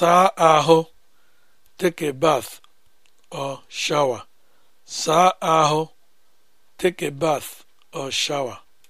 saa ahụ take a bath or shower saa ahụ take a bath or shower